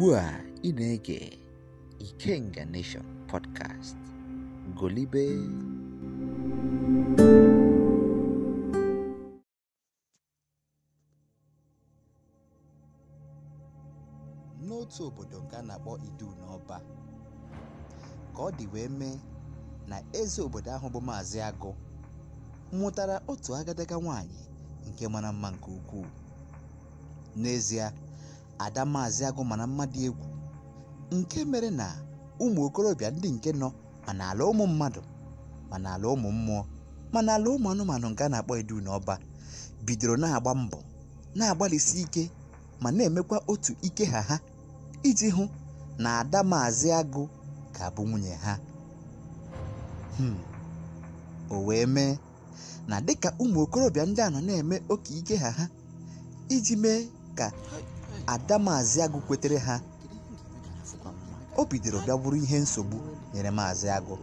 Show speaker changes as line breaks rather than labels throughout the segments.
ugbu a ị na-ege Ikenga Nation podcast golibe n'otu obodo nke a na-akpọ Idu n'Ọba ka ọ dị wee mee na eze obodo ahụ bụ Maazị Agụ mụtara otu agadaga nwanyị nke mara mma nke ukwuu n'ezie ada maazị agụ mana mmadụ egwu nke mere na ụmụ okorobịa ndị nke nọ mana ala ụmụ mmadụ mana ala ụmụ mmụọ mana ala ụmụ anụmanụ nke a na-akpọ edu ọba bidoro na-agba mbọ na-agbalịsi ike ma na-emekwa otu ike ha ha iji hụ na ada maazị agụ ka bụ nwunye ha hmm, o wee mee na dịka ụmụ okorobịa ndị a nọ na-eme oke ike ha ha iji mee ka Ada Maazị agụ kwetere ha o bidoro bịagburu ihe nsogbu nyere maazị agụ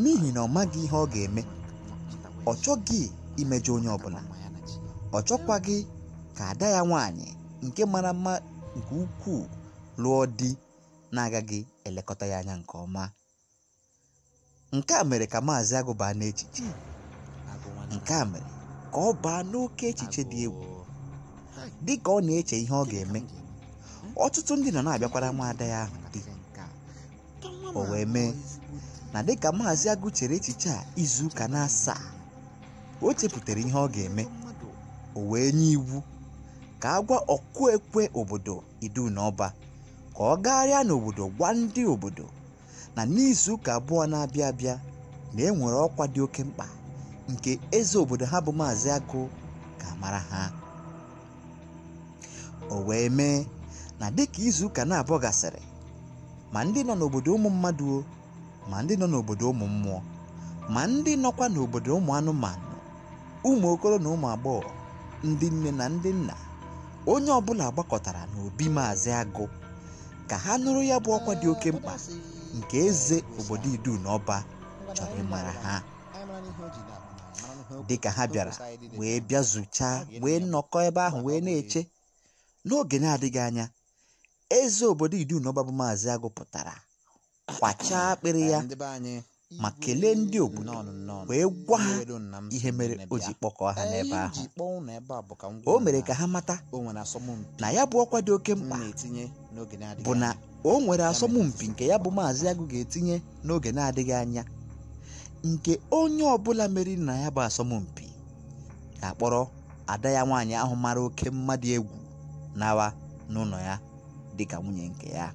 n'ihi na ọ maghị ihe ọ ga-eme ọ chọghị imejọ onye ọbụla ọ chọkwaghị ka ada ya nwanyị nke mara mma nke ukwuu lụọ di na-agaghị elekọta ya anya nke ọma nke a mere ka maazị agụ baa n'echiche nke a mere ka ọ baa n'oke echiche dị egwu dị ka ọ na-eche ihe ọ ga-eme ọtụtụ ndị nọ na-abịakwara nwaada ya ahụ dị o wee mee na dịka maazị agụ chere echiche a izuụka na asaa o chepụtara ihe ọ ga-eme o wee nye iwu ka a gwa ọkụ ekwe obodo idu na ọba ka ọ gagharịa n'obodo gwa ndị obodo na n'izuụka abụọ na-abịa abịa na e nwere ọkwa dị oke mkpa nke eze obodo ha bụ maazị agụ ga-amara ha o wee mee na dịka izuụka na-abụọ gasịrị ma ndị nọ n'obodo ụmụ mmadụ ma ndị nọ n'obodo ụmụ mmụọ ma ndị nọkwa n'obodo ụmụ anụmanụ ụmụ okoro na ụmụ agbọghọ ndị nne na ndị nna onye ọbụla gbakọtara n'obi maazị agụ ka ha nụrụ ya bụ ọkwa dị oke mkpa nke eze obodo idu na ọba chọrọ ịmara ha dịka ha bịara wee bịa zụchaa wee nnọkọ ebe ahụ wee na-eche n'oge na-adịghị anya eze obodo idunọba bụ maazị agụ pụtara kwachaa akpịrị ya ma kelee ndị obodo wee gwa ha ihe mere o ji kpọkọọ ha n'ebe ahụ o mere ka ha mata na ya bụ ọkwa dị oke mkpa bụ na o nwere asọmpi nke ya bụ maazị agụ ga-etinye n'oge na-adịghị anya nke onye ọbụla mere na ya bụ asọmpi ga-akpọrọ ada ya nwaanyị ahụ mara oke mmadụ egwu nawa n'ụlọ ya dịka nwunye nke ya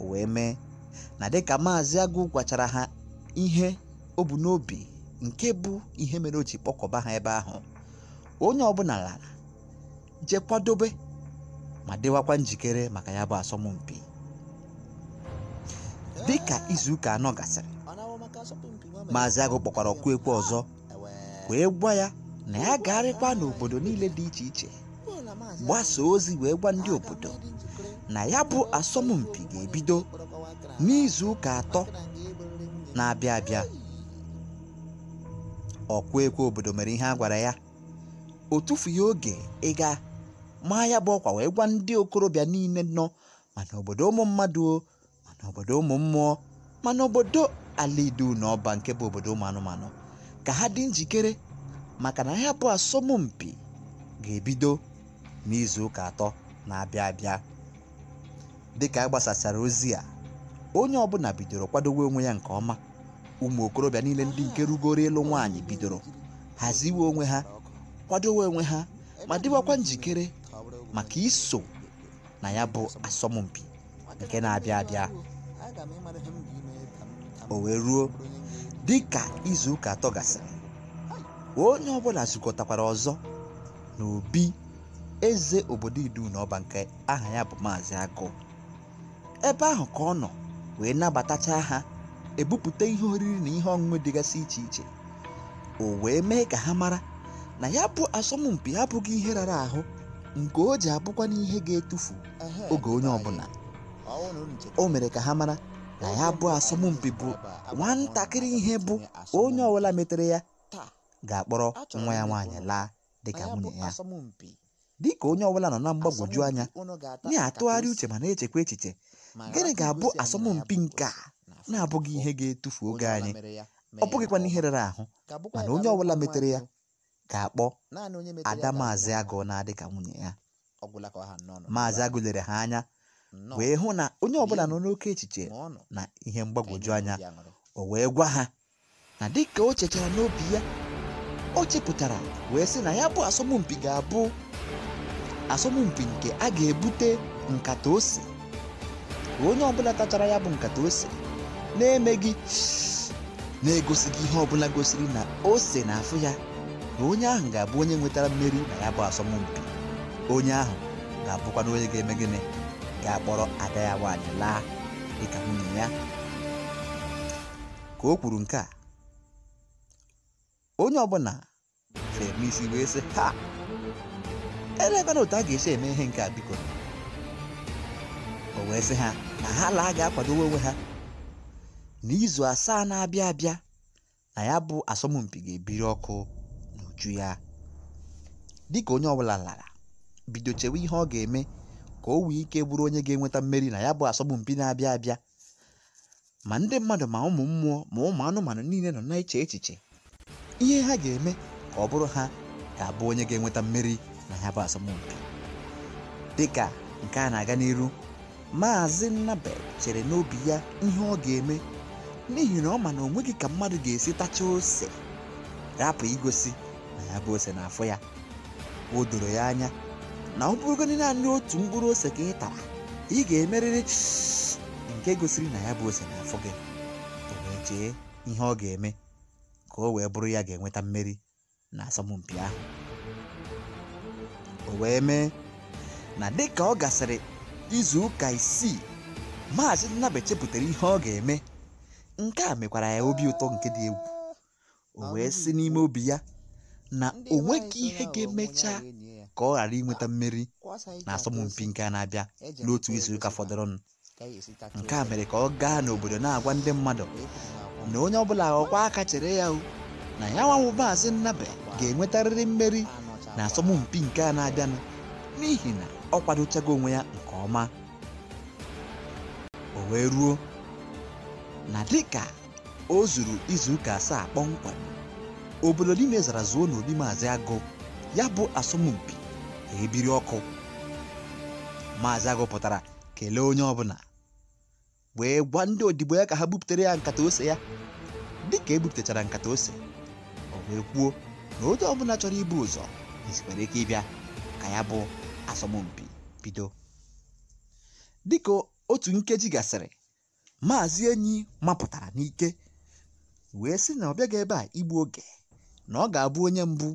o wee mee na dịka maazị agụ gwachara ha ihe o bu n'obi nke bụ ihe mere o ji kpọkọba ha ebe ahụ onye ọbụla lara jekwadobe kwadobe ma dịwakwa njikere maka ya bụ asọmpi dịka izuụka anọ gasịrị maazị agụ kpọkwara ọkụ ekwe ọzọ wee gwa ya na ya gagharịkwa n'obodo niile dị iche iche gbasa ozi wee gwa ndị obodo na ya bụ asọmpi ga-ebido n'izu ụka atọ na-abịa abịa ọkwa ekwe obodo mere ihe a gwara ya o tufughị oge ịga maa ya bụ ọkwa wee gwa ndị okorobịa niile nọ mana obodo ụmụ mmadụ mana obodo ụmụ mmụọ mana obodo ala na ọba nke bụ obodo ụmụ anụmanụ ka ha dị njikere maka na ya bụ asọmpi ga-ebido n'izu ụka atọ na-abịa abịa dịka ka e gbasasara ozi a onye ọbụla bidoro kwadowe onwe ya nke ọma ụmụ okorobịa niile ndị nke rugoro ịlụ nwaanyị bidoro haziwe onwe ha kwadowe onwe ha ma dịwakwa njikere maka iso na ya bụ asọmpi nke na-abịa abịa o wee ruo dịka izu ụka atọ gasịrị onye ọbụla zukọtakwara ọzọ n'obi eze obodo idunọba nke aha ya bụ maazị agụ ebe ahụ ka ọ nọ wee nabatacha ha ebupụta ihe oriri na ihe ọṅụṅụ dịgasị iche iche o wee mee ka ha mara na ya bụ asọmpi abụghị ihe rara ahụ nke o ji abụkwa n'ihe ga-etufu oge onye ọbụla o mere ka ha mara na ya bụ asọmpi bụ nwatakịrị ihe bụ onye ọbụla metere ya ga-akpọrọ nwa ya nwaanyị laa dịka nwunye ya dị ka onye ọbụla nọ na mgbagwoju anya na-atụgharị uche ma na-echekwa echiche gịnị ga-abụ asọmpi nke a na-abụghị ihe ga-etufu oge anyị ọ bụghịkwana ihe rere ahụ mana onye ọbụla metere ya ga-akpọ ada maazị agụ na-adị ka nwunye ya maazị agụ ha anya wee hụ na onye ọbụla nọ n'oke echiche na ihe mgbagwoju anya o wee gwa ha na dịka o chechara n'obi ya o chepụtara wee sị na ya bụ asọmpi ga-abụ asọmpi nke a ga-ebute nkata ose onye ọbụla tachara ya bụ nkata ose na-emeghị na-egosighị ihe ọbụla gosiri na ose na-afụ ya na onye ahụ ga-abụ onye nwetara mmeri na ya bụ asọmpi onye ahụ ga-abụkwa na onye ga-eme gịnị ga-akpọrọ ada ya nwaanyị laa dịka nwunye ya ka o kwuru nke a onye ọbụla m isi wee sị ha elekwana otu a ga-esi eme ihe nke a biko o wee sị ha na ha laa ga-akwadowe onwe ha n'izu asaa na-abịa abịa na ya bụ asọmpi ga-ebiri ọkụ n'uju ya dịka onye ọbụla lara bido chewe ihe ọ ga-eme ka o wee ike bụrụ onye ga-enweta mmeri na ya bụ asọmpi na-abịa abịa ma ndị mmadụ ma ụmụ mmụọ ma ụmụ anụmanụ niile nọ na-eche echiche ihe ha ga-eme ka ọ bụrụ ha ga-abụ onye ga-enweta mmeri na ya bụ asọmpi dịka nke a na-aga n'iru maazị Nnabel chere n'obi ya ihe ọ ga-eme n'ihi na ọ ma na o nweghị ka mmadụ ga-esi tacha ose rapụ igosi na ya bụ ose na ya o doro ya anya na ọ bụrụgodị naanị otu mkpụrụ ose ka ị tara ị ga-emerịrị nke gosiri na ya bụ ose n'afọ gị o chee ihe ọ ga-eme ka o wee bụrụ ya ga-enweta mmeri na asọmpi ahụ wee mee na dịka ọ gasịrị izu ụka isii maazị Nnabe chepụtara ihe ọ ga-eme nke a mekwara ya obi ụtọ nke dị egwu o wee si n'ime obi ya na o nweghị ihe ga-emecha ka ọ ghara inweta mmeri na asọmpi nke a na-abịa e n'otu izuụka fọdụrụnụ nke a mere ka ọ gaa n'obodo na-agwa ndị mmadụ na onye ọbụla ọkwa aka chere ya na ya nwanwụ maazị Nnabe ga-enwetarịrị mmeri na asọmpi nke a na-abịanụ n'ihi na ọ kwadochago onwe ya nke ọma o wee ruo na dịka o zuru izuụka asaa kpọmkwem obodo niile zara zuo n'obi maazị agụ ya bụ asọmpi ebiri ọkụ maazị agụ pụtara kelee onye ọbụla wee gwa ndị odibo ya ka ha bupụtere ya nkata ose ya dịka ebupụtachara nkata ose o wee kwuo na onye ọbụla chọrọ ibu ụzọ Olympics ike ịbịa ka ya bụ asọmpi bido dịka otu nkeji gasịrị maazị enyi mapụtara n'ike wee sị na ọ bịaghị ebe a igbu oge na ọ ga-abụ onye mbụ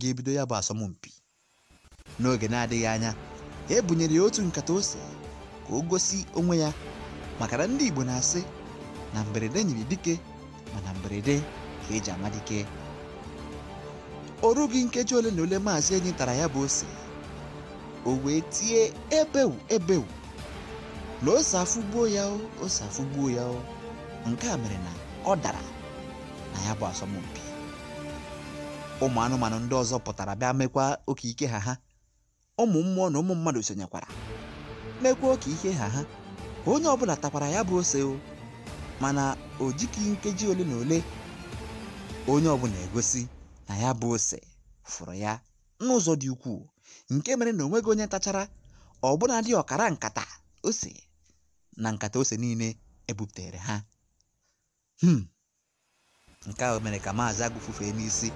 ga-ebido ya bụ asọmpi n'oge na-adịghị anya ebunyere ya otu nkata ose ka o gosi onwe ya maka na ndị Igbo na-asị na mberede nyiri dike ma na mberede ka eji ama Ọ rụghị nkeji ole na ole maazị enyi tara ya bụ ose o wee tie ebewu ebewu na ose afụgbuo ya o ose afụgbuo ya o nke a mere na ọ dara na ya bụ asọmpi ụmụ anụmanụ ndị ọzọ pụtara bịa mekwa oke ike ha ha ụmụ mmụọ na ụmụ mmadụ sonyekwara mekwa oke ike ha ha ka onye ọbụla takwara ya bụ ose o mana o jikighị nkeji ole na ole onye ọbụla egosi na ya bụ ose fụrụ ya n'ụzọ dị ukwuu nke mere na o nweghị onye tachara ọbụnadị ọkara nkata ose na nkata ose niile ebuputere ha hmm. nke ahụ mere ka maazị agụ n'isi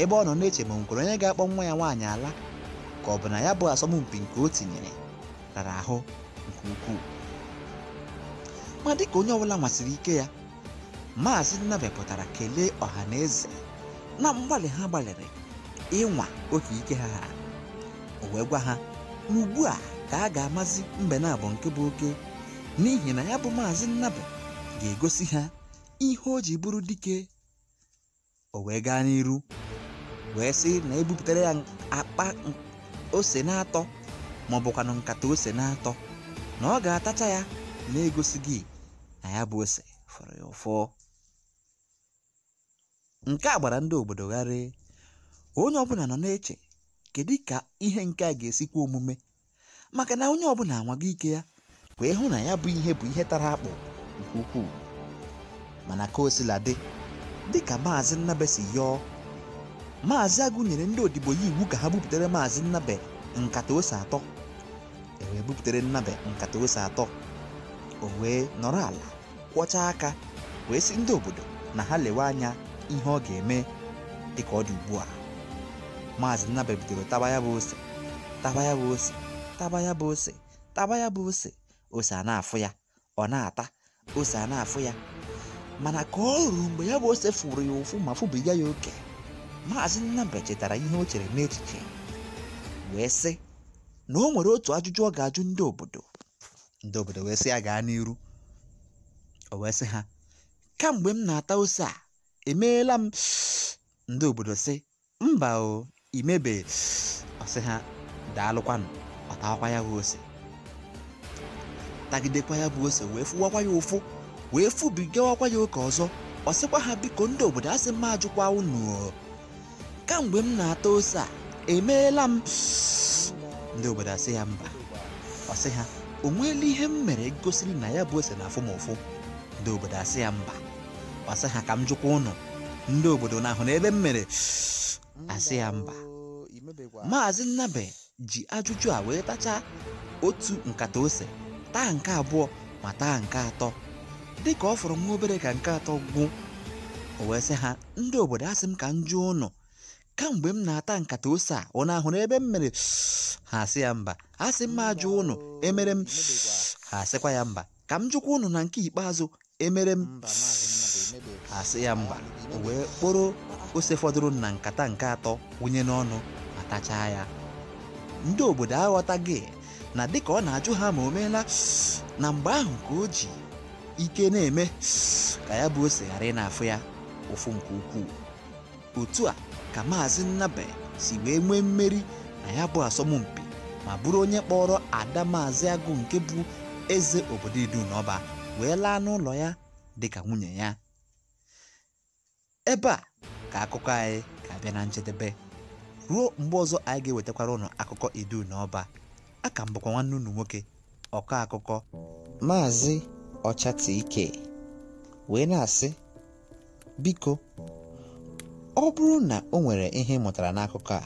ebe ọ nọ na-eche ma nkwere onye ga-akpọ nwa ya nwaanyị ala ka ọ bụ na ya bụ asọmpi nke o tinyere rara ahụ nke ukwuu ma dị ka onye ọbụla nwasịrị ike ya maazị nnabe pụtara kelee ọha na eze na mgbali ha gbalịrị ịnwa oke ike ha ha o wee gwa ha na ugbu ka a ga-amazi bụ nke bụ oke n'ihi na ya bụ maazị Nnabụ ga-egosi ha ihe o ji bụrụ dike o wee gaa n'iru wee sị na ebupụtara ya akpa ose na-atọ ma na nkata ose na-atọ na ọ ga-atacha ya na egosi gị na ya bụ ose fọrọ ya ụfọ Nke a gbara ndị obodo gharịị, onye ọbụla nọ na-eche kedu ka ihe nke a ga-esi omume maka na onye ọbụla anwago ike ya wee hụ na ya bụ ihe bụ ihe tara akpụ nke ukwuu mana ka o sila dị dịka maazị Nnabe si yọọ maazị Agụ nyere ndị odibo ya iwu ka ha buputere maazị Nnabe nkata ose atọ e buputere Nnabe nkata ose atọ o wee nọrọ ala kwọchaa aka wee si ndị obodo na ha lewe anya ihe ọ ga-eme dịka ọ dị ugbu a maazị nnabe bidoro taba ya bụ ose taba ya bụ ose taba ya bụ ose taba ya bụ ose ose a na-afụ ya ọ na-ata ose a na-afụ ya mana ka ọ ruru mgbe ya bụ ose fụrụ ya ụfụ ma fụbiga ya oke maazị nnabe chetara ihe o chere n'echiche wee sị na o nwere otu ajụjụ ọ ga-ajụ ndị obodo ndị obodo wee sị ya gaa n'iru o wee sị ha kamgbe m na-ata ose a emeela m ndị obodo sị mba o imebe ọsị ha daalụkwanụ ọtakwa ya bụ ose tagidekwa ya bụ ose wee fụwakwa ya ụfụ wee fụbigawakwa ya oke ọzọ ọ sịkwa ha biko ndị obodo asị m ajụkwa unu kamgbe m na-ata ose a emeela m ndị obodo asị ya mba ọsị ha o nweela ihe m mere gosiri na ya bụ ose na afụ m ụfụ ndị obodo asị ya mba asị ha ka m jụkwa ụnụ ndị obodo n'ahụ na ebe m mere asị ya mba maazị nnabe ji ajụjụ a wee tachaa otu nkata ose taa nke abụọ ma taa nke atọ dị ka ọ fọrọ nwa obere ka nke atọ gwụ o wee sị ha ndị obodo asị m ka m jụọ ụnụ kamgbe m na-ata nkata ose a ọ na-ahụ n'ebe m mere ha asị ya mba asị m ajụ ụnụ emere m ha asịkwa ya mba ka m jụkwa ụnụ na nke ikpeazụ emere m asị ya mba wee kporo ose fọdụrụ na nkata nke atọ wụnye n'ọnụ ma tachaa ya ndị obodo aghọtaghị na dịka ọ na-ajụ ha ma o meela na mgbe ahụ ka o ji ike na-eme ka ya bụ ose ghara ịna na-afụ ya ụfụ nke ukwuu otu a ka maazị Nnabe si wee nwee mmeri na ya bụ asọmpi ma bụrụ onye kpọrọ ada maazị agụ nke bụ eze obodo idu ọba wee laa n'ụlọ ya dịka nwunye ya ebe a ka akụkọ anyị ga-abịa na njedebe ruo mgbe ọzọ anyị ga-ewetakwara ụnụ akụkọ idu na ọba a ka nwanne unu nwoke ọkọ akụkọ maazị ọchatike wee na-asị biko ọ bụrụ na o nwere ihe ị mụtara n'akụkọ a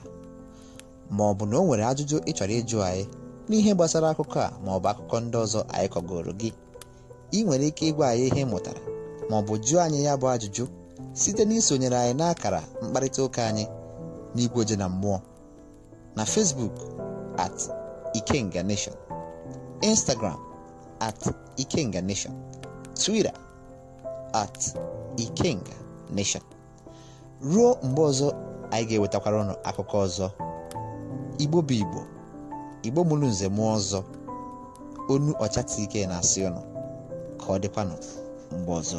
ma ọ bụ na o nwere ajụjụ ị chọrọ ịjụ anyị n'ihe gbasara akụkọ a ma ọ bụ akụkọ ndị ọzọ anyị kọgoro gị ị nwere ike ịgwa anyị ihe ị mụtara ma ọ bụ jụọ anyị ya bụ ajụjụ site na isonyere anyị n'akara mkparịta ụka anyị n'igwe oje na mmụọ na Facebook at Ikenga Nation Instagram at Ikenga Nation Twitter at Ikenga Nation ruo mgbe ọzọ anyị ga-ewetakwara ụnụ akụkọ ọzọ Igbo bụ Igbo Igbo mụrụ nze mụọ ọzọ onu ọchatakwa ike na-asị ụnụ ka ọ dịkwanụ mgbe ọzọ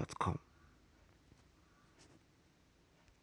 Podcast.com.